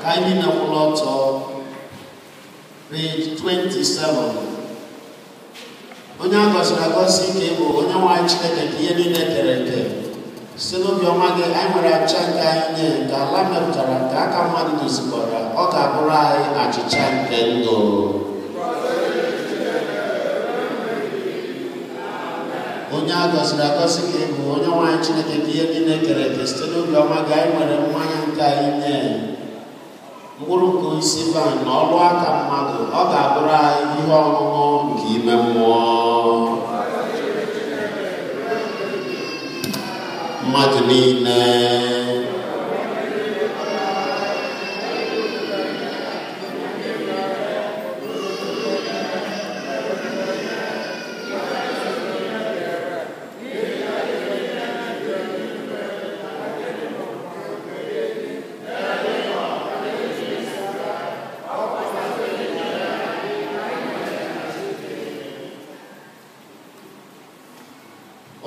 Kindly now to ọtọ. 27. onye a gọziri agọzi ike bụ onye nwaanyị chineke ka ihe niile kere eke site n'obi ọma gị anyị nwere achịcha nke anyị nye nke ala mepụtara nke aka mmadụ dozikọrọ ọ ga-abụrụ anyị achịcha nke ndụ onye a gọziri agọzi ka ịbụ onye nwanyị chineke ka ihe niile kere eke site n'obi ọma gị anyị nwere mmanya nke anyị nye mkpụrụ nke isi ban na ọlụ aka mmadụ ọ ga-abụrụ anyị ihe ọṅụṅụ nke ime mmụọ mmadụ niile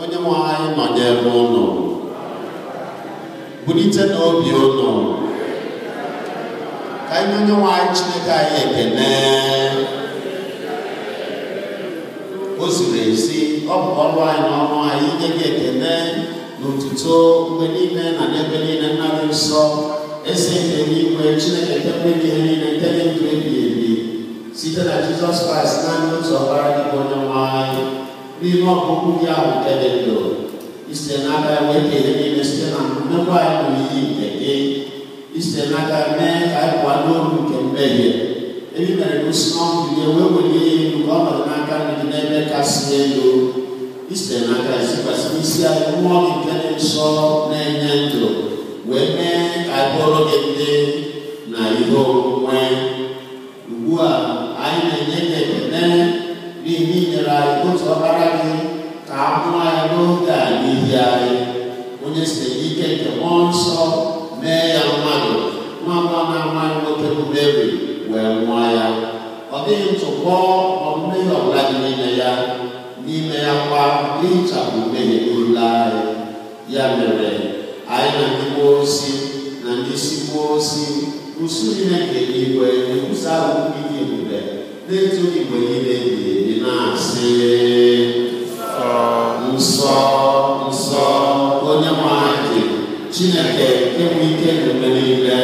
onye nwe anyị nọnyere ụnụ bulite n'obi ụnụ ka anyị onye nwe anyị chineke anyị ekene o ziri ezi ọ bụ ọrụ anyị na ọrụ anyị inye gị ekene na mgbe niile na n'ebe niile nna nsọ eze nke n'igwe chineke nke mgbe ihe niile nke ndụ ebi site na jizọs kraịst naanị otu ọbara gị onye nwe anyị n'ime ọgụgụ gị ahụ nke dị ndụ isite n'aka ya wee kele niile site na mmekwa anyị bụ iyi isite n'aka mee ka anyị n'olu nke mmehie ebi mere ka osi n'ọnụ gị wee welie ya elu ka ọ n'aka n'ebe kasị elu isite n'aka zikwasị isi anyị mmụọ gị nke dị nsọ na-enye ndụ wee mee ka anyị bụrụ gị ndị na ihe omume ugbu a anyị na-enye gị ekele Kristo ike nke mmụọ nsọ mee na nwa nwoke bụ Meri wee kwa ihichapụ mmehie niile anyị ya mere anyị na ndị mmụọ ozi na ndị isi mmụọ ozi usu niile nke igwe na-ekwusa ahụ ndị Chineke enwe ike n'ime niile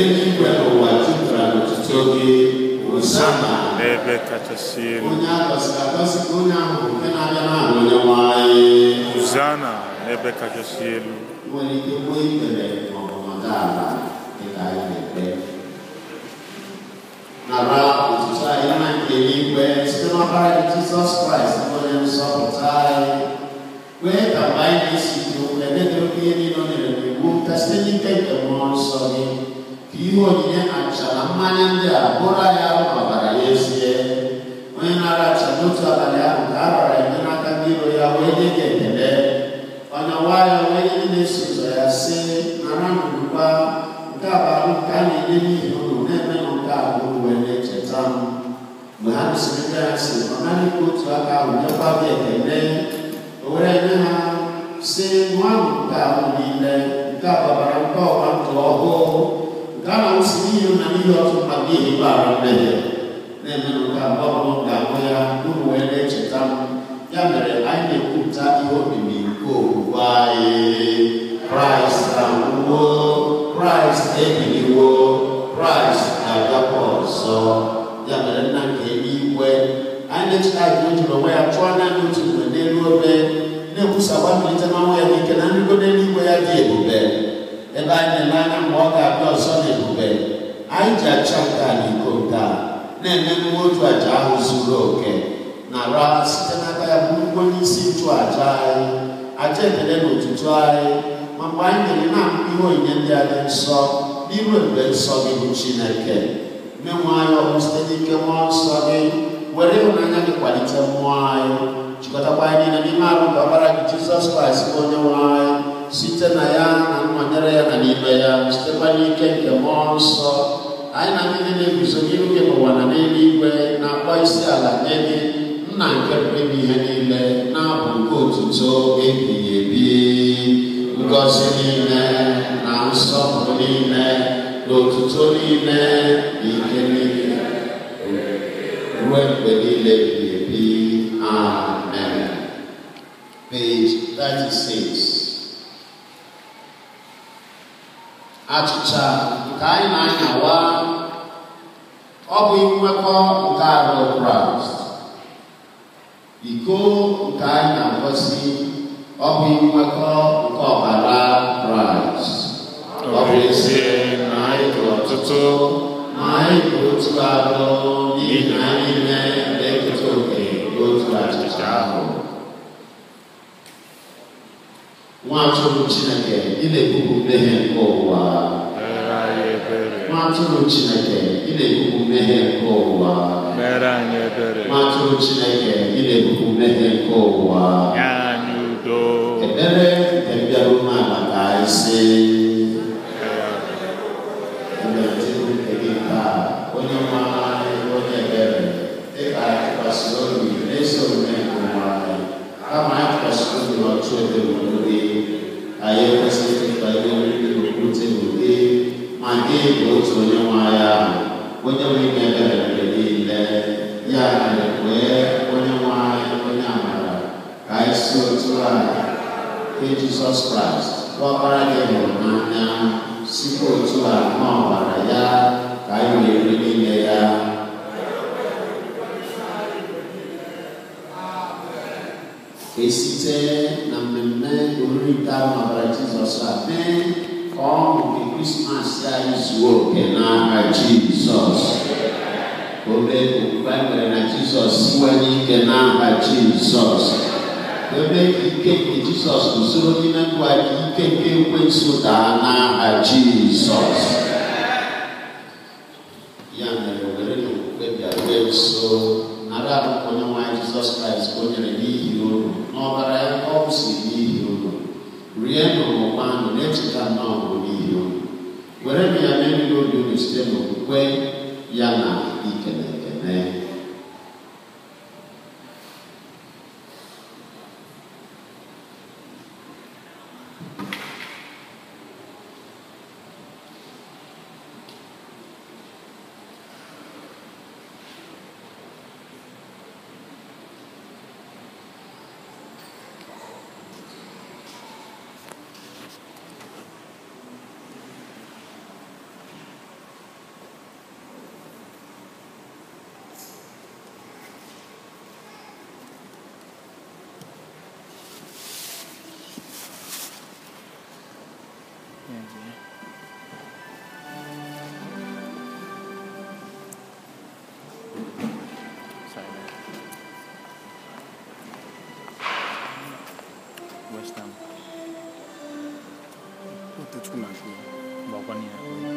eluigwe n'ụwa jupụtara n'ọtụtụ oge osama onye agọziri agọzi onye ahụ nke na-abịa n'ahụ onye nwanyị Hosanna n'ebe kachasị elu nwere ike gboo ikpere maọbụ nọdụ ala dịka anyị na-ekpe nara otutu anyị na nke eluigwe site n'ọbara Jizọs Kraịst onye nsọpụta anyị kwee ka mgbe anyị na-esi dị ιδιαίτερο πυρήνο ελληνικού, τα στενικά υπερμόνσονη, πυρήνο αξαλαμάνιαντε απόλα για άλλο παραγέσιε, ο ένα ρατσαμούτσο απαλιάρου κάρορα, ο ένα καμπύρο για ουέγε και τελέ, ο ένα βάλα ουέγε είναι σουζαιασέ, να ράνω λουπά, ο καβάλου κάνει λίγη χρόνο, ναι μένω κάπου που ελέ και τσάμου. Μου είχαμε συμμετέρα σε μονάδι που τσουακά ουνιώπα και τελέ, ο ρε ναι semwan ta'ulile kaba baranko wan toho kana usmiyo na niyo tumagi ibarande ne menu ka bobo ga moya duwele chitam yamere aine kuta iyo bibi ko wae Christ awo Christ ebili wo Christ agapo so yamere na ke iwe aine chitam yo tuwe ya chwana yo tuwe ne luwe na-ekwusa gbabilite n'ọnwụ ya n'ike na nrigo n'eluigwe ya dị ebube ebe anyị na-ele anya mgbe ọ ga-abịa ọzọ na ebube anyị ji acha nke a na iko nke a na-eme emume otu aja ahụ zuru oke na ra site n'aka ya bụ ugbo n'isi nchụ aja anyị aja ekele na otutu anyị ma mgbe anyị na na amụ ihe onyinye ndị a dị nsọ n'iru ebube nsọ gị bụ chineke menwe anyị ọrụ site n'ike nwa nsọ gị were ịhụnanya gị kwalite mmụọ anyị jikọtakwa anyị na n'ime arụ nke ọbara gị jizọs kraịst bụ onye nwe anyị site na ya na nnọnyere ya na n'ime ya sitekwa n'ike nke mmụọ nsọ anyị na ndị niile guzo n'iru gị n'ụwa na igwe na-akpọ isi ala nye gị nna nke pụrụ ihe niile na-abụ nke otuto ebighị ebi ngọzi niile na nsọpụrụ niile na otuto niile na ike niile ruo mgbe niile ebighị 36. Achịcha nke anyị na-anyawa ọ bụ nwekọ nke arụ Kraịst. Iko nke anyị na-agọsi ọ bụ nwekọ nke ọbara Kraịst. Ọ bụ ezie na anyị dị ọtụtụ ma anyị bụ otu arụ n'ihi na anyị niile na-eketa oke otu achịcha ahụ nwaatụrụ chineke ị na-ebupụ mmehie nke ụwa nwaatụrụ chineke ị na-ebupụ mmehie nke ụwa nwaatụrụ chineke ị na-ebupụ mmehie nke ụwa ekpere nke mbịarụ n'ala ka anyị si òtúrààyè pé Jesus Christ wọ́n bára lẹ́yìn ọ̀nà sípò òtúrààyè náà wàrà yá káyọ̀ èrè nílẹ̀ yá. esite na mmemme oriri taa n'ọbara Jizọs a mee ka ọ hụ nke Krismas anyị zuo oke n'aha Jizọs obe okwukwe nwere na Jizọs siwanye ike n'aha Jizọs ebe ikeke jizọs usoro n'ime ndụ anyị ikeke ekwensu daa n'aha jizọs ya mere were na okwukwe bịaruo nso nara ahụ onye nwanyị jizọs kraịst ka o nyere n'ihi unu n'ọbara ya ọ kwụsịrị n'ihi unu rie n'ụmụkwanụ na-echeta nnọọ n'ihi unu were na ya mee mmiri obi unu site n'okwukwe ya na ikele Entendi. Sai daí. Né? Gostamos. Puta, desculpa. Balconinha.